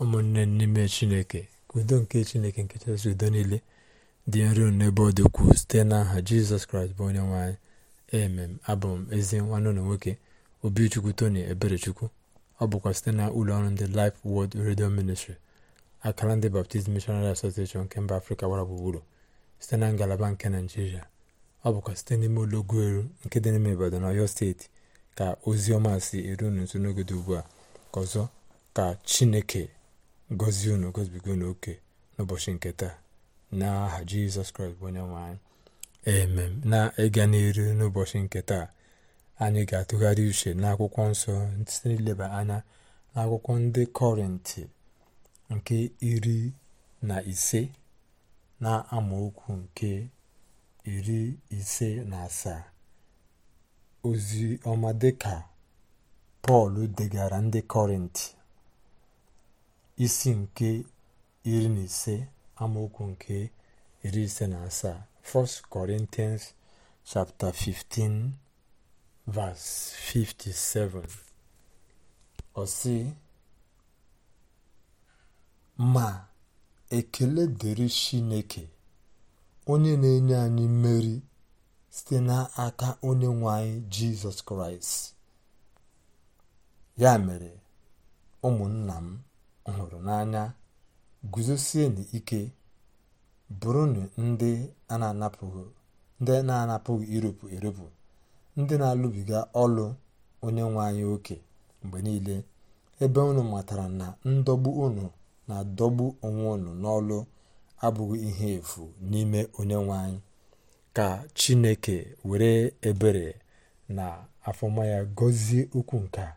ụmụnne n'ime chineke udo nke chineke nke chasị udo niile dị nro n'ebe ọ dị site n'aha jizọs kraịst bụ onye nwanyị emem abụ m ezi nwanne ụlọ nwoke obichukwu tony eberechukwu ọ bụkwa site na ụlọ ọrụ ndị Life Word Radio Ministry akara ndị Baptist Missionary Association nke mba afrịka gbara gburugburu site na ngalaba nke naijiria ọ bụkwa site n'ime ụlọ Ogueru nke dị n'ime na Ọyọ steeti ka ozi ọma si eru n'nso n'oge dị ugbu a ka ọzọ ka chineke gọzie unu gọzibigo n'oke n'ụbọchị nke taa n'aha jizọs kraịst bụ onye nwe anyị emem na ịga n'iru n'ụbọchị nke taa anyị ga-atụgharị uche n'akwụkwọ nsọ site n'ileba anya n'akwụkwọ ndị kọrịntị nke iri na ise na amaokwu nke iri ise na asaa ozi ọma dịka pọl degara ndị kọrịntị isi nke iri na ise amaokwu nke iri ise na asaa 1 Corinthians chapter 15 57 ma ekele dịrị Chineke onye na-enye anyị mmeri site n'aka onye nwe anyị Jizọs Kraịst ya mere ụmụnna m hụrụ n'anya guzosienụ ike bụrụnụ ndị na-anapụghị ndị na-anapụghị ndị na-alụbiga ọlụ onye nwe anyị oke mgbe niile ebe unu matara na ndọgbu unu na-adọgbu onwe unu n'ọlụ abụghị ihe efu n'ime onye nwe anyị ka chineke were ebere na afọma ya gọzie ukwu nke a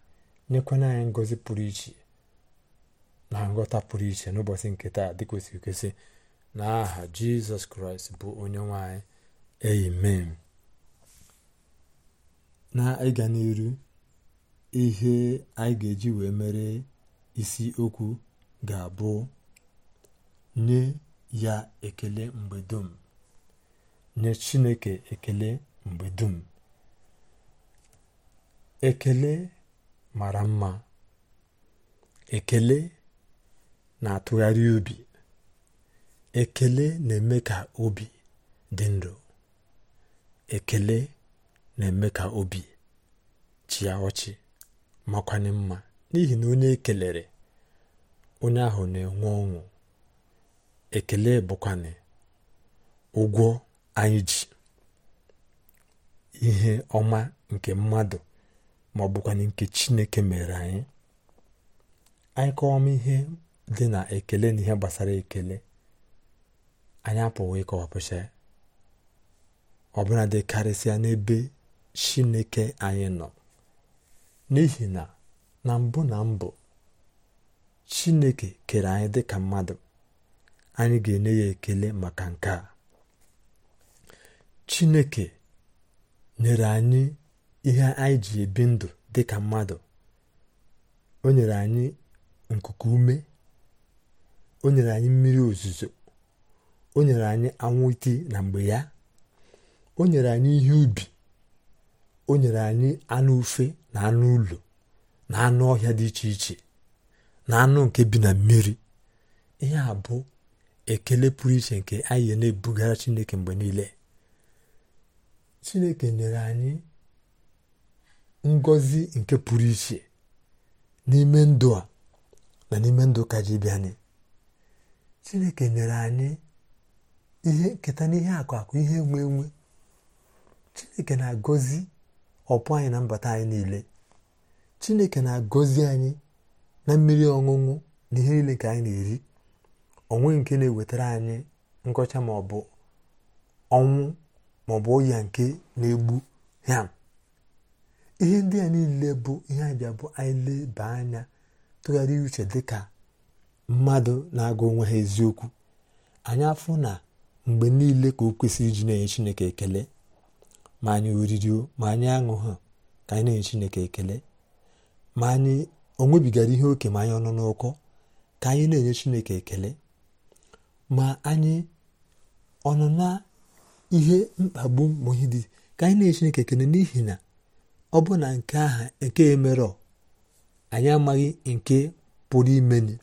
nyekwana anyị ngọzi pụrụ iche na nghọta pụrụ iche n'ụbọchị nke taa dị kwesịrị kwesị na aha jizọs kraịst bụ onye nwanyị amen na ịga n'iru ihe anyị ga-eji wee mere isi okwu ga-abụ nye ya ekele mgbe dum nye chineke ekele mgbe dum ekele mara mma ekele na-atụgharị obi ekele na-eme ka obi dị ndụ ekele na-eme ka obi chịa ọchị makwanye mma n'ihi na onye ekelere onye ahụ na-enwe ọṅụ ekele bụkwana ụgwọ anyị ji ihe ọma nke mmadụ ma ọ nke chineke mere anyị anyị m ihe dị na ekele na ihe gbasara ekele anyị apụghị ịkọwapụcha ya ọbụla karịsịa n'ebe chineke anyị nọ n'ihi na na mbụ na mbụ chineke kere anyị dị ka mmadụ anyị ga-enye ya ekele maka nke a chineke nyere anyị ihe anyị ji ebi ndụ dị ka mmadụ o nyere anyị nkuku ume o nyere anyị mmiri ozuzo o nyere anyị anwụ iti na mgbe ya o nyere anyị ihe ubi o nyere anyị anụ ufe na anụ ụlọ na anụ ọhịa dị iche iche na anụ nke bi na mmiri ihe a bụ ekele pụrụ iche nke anyị na-ebugara chineke mgbe niile chineke nyere anyị ngọzi nke pụrụ iche n'ime ndụ a na n'ime ndụ ka ji anyị chineke nyere anyị ihe nketa n'ihe akụ ihe enwe enwe chineke na-agọzi ọpụ anyị na mbata anyị niile chineke na-agọzi anyị na mmiri ọṅụṅụ na ihe niile ka anyị na-eri onwe nke na-ewetara anyị nkọcha bụ ọnwụ ma ọ bụ ọya nke na-egbu ya ihe ndị a niile bụ ihe anyị ji anyị leba anya tụgharịa uche dịka mmadụ na-agụ onwe ha eziokwu anyị afụ na mgbe niile ka o kwesịrị iji na-enye chineke ekele ma anyị oririo ma anyị aṅụ ha ka anyị na-enye chineke ekele ma anyị onwebigara ihe oke ma anyị ọnụ n'ụkọ ka anyị na-enye chineke ekele ma anyị ọnụ na ihe mkpagbu ma ka anyị na-enye chineke ekele n'ihi na ọ bụ na nke aha nke emerọ anyị amaghị nke pụrụ imeni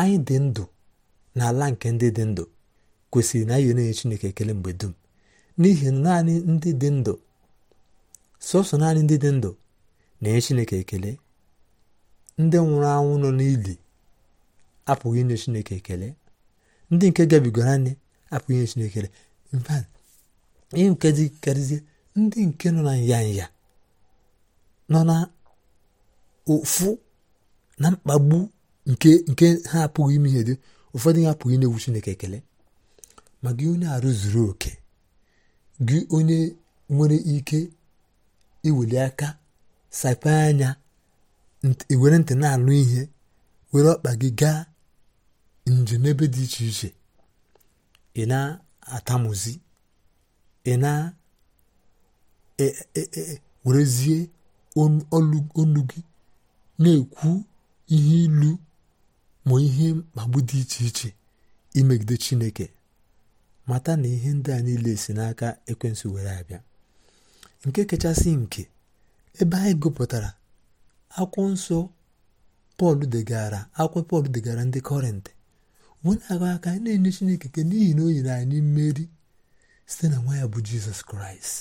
anyị dị ndụ n'ala nke ndị dị ndụ kwesịrị na anyị na-enye Chineke ekele mgbe dum n'ihi na naanị ndị dị ndụ sọsọ naanị ndị dị ndụ na-enye Chineke ekele ndị nwụrụ anwụ nọ n'ili apụghị inye Chineke ekele ndị nke gabigoro anyị apụghị inye Chineke ekele ihe nke dị karịzie ndị nke nọ na nyanya nọ na ofu na mkpagbu nke ha apụghị ime ihe dị ụfọdụ ya apụghị na ewu Chineke ekele ma gị onye arụ zuru oke gị onye nwere ike iweli aka sape anya were ntị na-anụ ihe were ọkpa gị gaa njem n'ebe dị iche iche ị na-atamuzi ị na-werezie e, e, e, olu gị na-ekwu ihe ilu ma ihe mkpagbu dị iche iche imegide chineke mata na ihe ndị a niile si n'aka ekwensu were abịa nke kachasị nke ebe anyị gụpụtara akwụ nsọ pọl degara akwụkwọ pọl degara ndị kọrịntị wee na-aga aka na-enye chineke ke n'ihi na o nyere anyị mmeri site na nwa ya bụ jizọs kraịst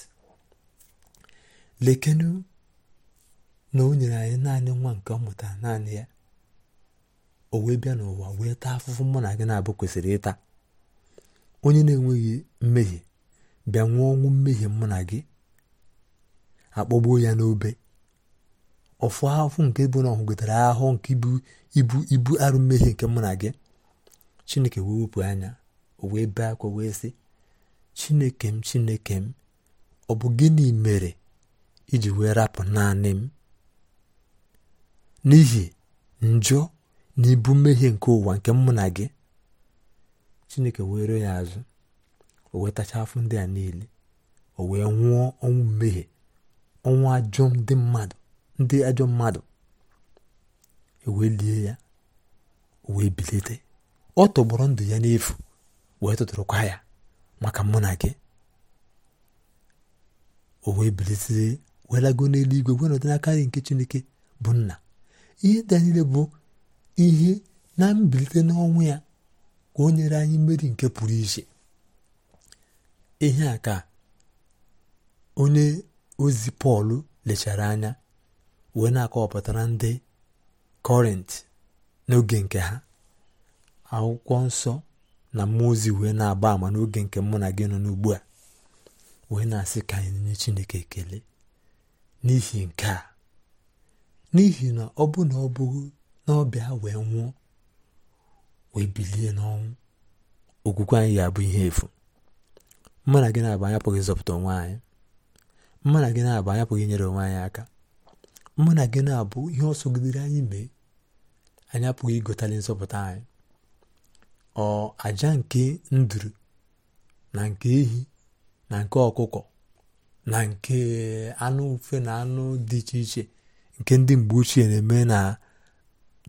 lekenu na o nyere anyị naanị nwa nke ọ naanị ya o wee bịa n'ụwa wee taa afụfụ mụ na gị na-abụ kwesịrị ịta onye na-enweghị mmehie bịa nwụọ ọnwụ mmehie mụ na gị akpọgbuo ya n'obe ọfụ ahụhụ nke bụ na ọhụgotara ahụhụ nke ibu ibu arụ mmehie nke mụ na gị chineke wee wepụ anya o wee bee akwa wee sị chineke m chineke m ọ bụ gịnị mere iji wee rapụ naanị m n'ihi njọ n'ibu mmehie nke ụwa nke mụ na gị chineke were ya azụ o wetacha afọ ndị a niile o wee nwụọ ọnwụ mmehie ọnwụ ajọ ndị mmadụ ndị ajọ mmadụ e wee lie ya o wee bilite ọ tọgbọrọ ndụ ya n'efu wee tụtụrụkwa ya maka mụ na gị o wee bilite wee lago n'eluigwe wee n'aka nke chineke bụ nna ihe ndị a niile bụ ihe na mbilite n'ọnwụ ya ka o nyere anyị mmeri nke pụrụ iche ihe a ka onye ozi pọl lechara anya wee na-akọwapụtara ndị kọrint n'oge nke ha akwụkwọ nsọ na mmụọ ozi wee na-agba ama n'oge nke mụ na gị nọ n'ugbu a wee na-asị ka anyị nye chineke ekele n'ihi nke a n'ihi na ọ bụ na ọ bụghị n'ọbịa ọbịa wee nwụọ wee bilie n'ọnwụ okwukwe anyị ga-abụ ihe efu mma na gị na-abụ anyị ịzọpụta onwe anyị mma na gị na-abụ anyị inyere onwe anyị aka mma na gị na-abụ ihe ọsọ sogidere anyị mee anyapụghị apụghị igotali nzọpụta anyị ọ aja nke nduru na nke ehi na nke ọkụkọ na nke anụ ufe na anụ dị iche iche nke ndị mgbe ochie na-eme na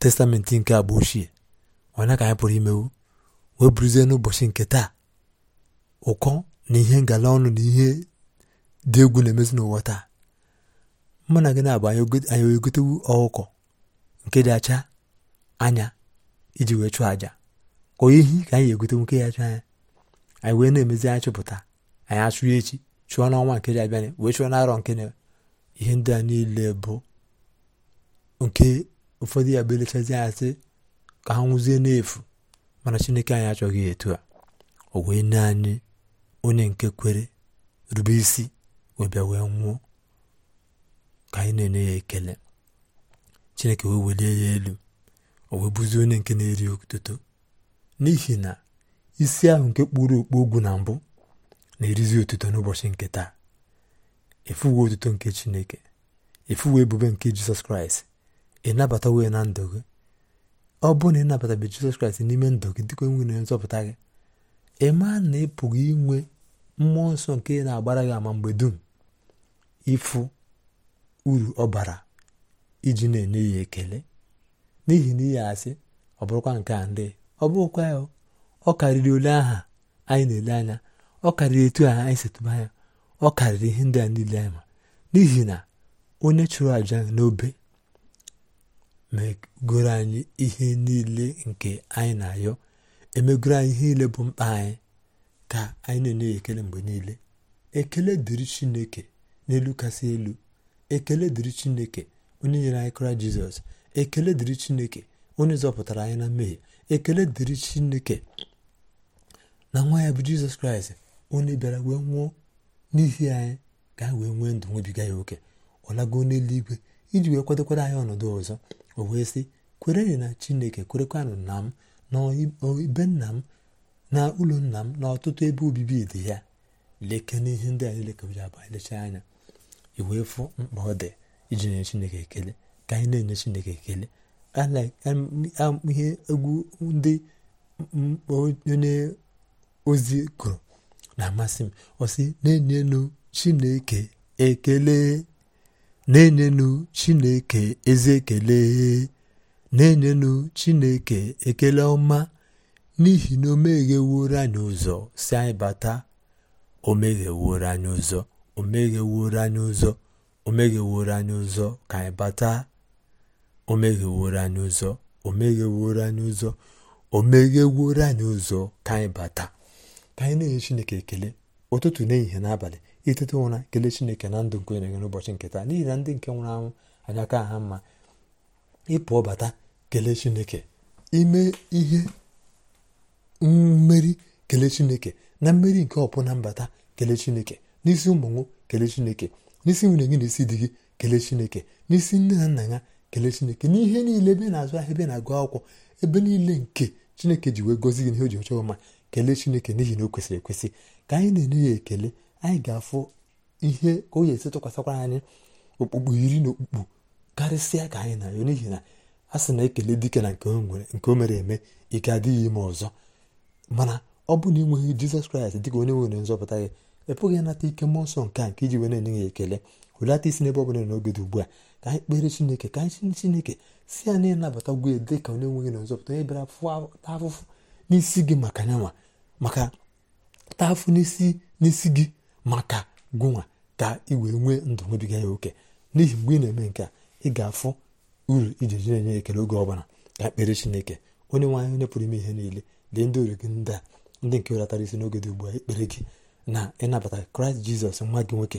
testamenti nke agba ochie onye ka anyị pụrụ imewu wee buruzie n'ụbọchị nke taa ụkọ na ihe ngala ọnụ na ihe dị egwu na-emezi n'ụwa taa mụ na gị na-abụ anyị egotewu ọhụkọ nke dị acha anya iji wee chụọ aja ka ehi ka anyị egotewu nke ya acha anya anyị wee na-emezi anyị chụpụta anyị achụọ echi chụọ n'ọnwa nke dị abịa wee chụọ n'arọ nke na ihe ndị a niile bụ nke ụfọdụ ya bụ elechazi asị ka ha nwụzie n'efu mana chineke anyị achọghị etu a o wee nye anyị onye nke kwere rube isi wee bịa wee nwụọ ka anyị na-enye ya ekele chineke wee welie ya elu o wee bụzie onye nke na-eri otuto n'ihi na isi ahụ nke kpụrụ okpu ogwu na mbụ na-erizi otuto n'ụbọchị nke taa efuwe otuto nke chineke efuwe ebube nke jizọs kraịst ị nabata na ndụ gị ọ bụrụ na ịnabatabe jizọs kraịst n'ime ndụ gị dịka onye nwere nzọpụta gị ị na ị pụghị inwe mmụọ nsọ nke na-agbara gị ama mgbe dum ịfụ uru ọ bara iji na-enye ya ekele n'ihi na ihe asị ọ bụrụkwa nke a ndị ọ bụrụkwa ya ọ karịrị ole aha anyị na-ele anya ọ karịrị etu aha anyị setụba anya ọ karịrị ihe ndị a niile anyị ma n'ihi na onye chụrụ aja n'obe megoro anyị ihe niile nke anyị na-ayọ emegoro anyị ihe niile bụ mkpa anyị ka anyị na-enye ekele mgbe niile ekele dịrị chineke n'elu kasị elu ekele dịrị chineke onye nyere anyị kra jizọs ekele dịrị chineke onye zọpụtara anyị na mmehie ekele dịrị chineke na nwa ya bụ jizọs kraịst onye bịara wee nwụọ n'ihi anyị ka wee nwee ndụ nwebiga ya oke ọ n'eluigwe iji wee kwadokwara anyị ọnọdụ ọzọ o wee sị kwerenụ na chineke kwerekwanụ na m na nna m na ụlọ nna m na ọtụtụ ebe obibi dị ya leke n'ihe ndị anyị lekọbara abụ anyị lechaa anya wee fụ mkpa ọ dị iji nye chineke ekele ka anyị na-enye chineke ekele ihe egwu ndị onye ozi kụrụ na-amasị m ọ sị na-enyenụ chineke ekele na-enyenu chineke ezi ekele na-enyenu chineke ekele ọma n'ihi na o megheworo anyị ụzọ si anyị bata o megheworo anyị ụzọ o megheworo anyị ụzọ o megheworo anyị ụzọ ka anyị bata o megheworo anyị ụzọ o megheworo anyị ụzọ o megheworo anyị ụzọ ka anyị bata ka anyị na-enye chineke ekele ụtụtụ n'ehihie n'abalị itete ụra kelee chineke na ndụ nke onye gị n'ụbọchị nke taa n'ihi na ndị nke nwụrụ anwụ anya aka ha mma ịpụọ bata kelee chineke ime ihe mmeri kelee chineke na mmeri nke ọpụ na mbata kelee chineke n'isi ụmụnwụ kelee chineke n'isi nwunye gị na isi di gị kelee chineke n'isi nne na nna ya kelee chineke n'ihe niile ebe na-azụ ahịa ebe na-agụ akwụkwọ ebe niile nke chineke ji wee gozi gị n'ihe o ji ọchọ ọma kelee chineke n'ihi na o kwesịrị ekwesị ka anyị na-enye ya ekele anyị ga-afụ ihe ka o ga-esi tụkwasịkwara anyị okpukpu iri na okpukpu karịsịa ka anyị na-arịọ n'ihi na a sị na ekele dike na nke o mere eme ike adịghị ime ọzọ mana ọ bụ na ịnweghị jizọs kraịst dịka onye nwere nzọpụta gị ịpụghị ịnata ike mmụọ nsọ nke a nke iji wee na-enye ya ekele hulata isi n'ebe ọ bụla n'oge dị ugbu a ka anyị kpere chineke ka anyị chineke si ya na ịnabata ugwu ya dị ka onye nweghị na nzọpụta onye bịara ta afụfụ n'isi gị maka nyanwa maka ta afụ n'isi n'isi gị maka gụnwa ka ị wee nwee ndụ nwebiga ya oke n'ihi mgbe ị na-eme nke a ị ga-afụ uru iji ji na-enye ekele oge ọbụla ka ekpere chineke onye nwe onye pụrụ ime ihe niile dị ndị ori gị ndị a ndị nke welatara isi n'oge dị ugbu a ekpere gị na ịnabata kraịst jizọs nwa gị nwoke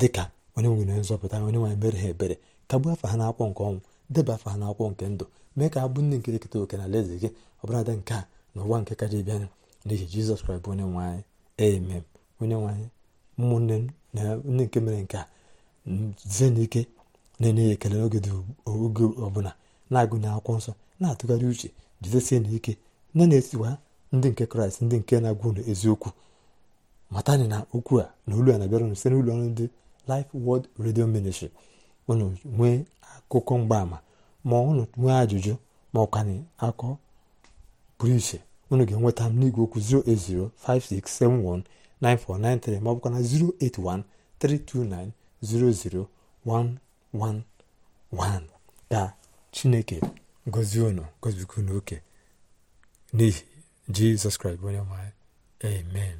dị ka onye nwere nzọpụta onye nwaanyị mere ha ebere kagbuo afa ha n'akwụkwọ nke ọnwụ deba afa ha n'akwụkwọ nke ndụ mee ka ha bụ ndị nke eketa oke na alaeze gị ọbụladị nke a na ụwa nke kaji bịanụ n'ihi jizọs kraịst bụ onye nwe anyị onye nwaanyị ụmụnne m na ndị nke mere nke a zie n'ike na-enye ekele n'oge oge ọbụla na-agụnye akwụkwọ nsọ na-atụgharị uche jidesie na nne na-esiwa ndị nke kraịst ndị nke na-agwụ ụlọ eziokwu matani na okwu a na olu a na-abịara unu site n'ụlọ ọrụ ndị lif Word redio Ministry unu nwee akụkọ mgbaama ma ụnụ nwee ajụjụ ma ọ kwanye akọ pụrụ iche unu ga-enweta m n'igwe okwu 0805671 9493 ma ọ bụkwa 081 329 00111 ka chineke gozie unu gozikwa oke n'ihi jizọs kraịst bụ onye nwanyị amen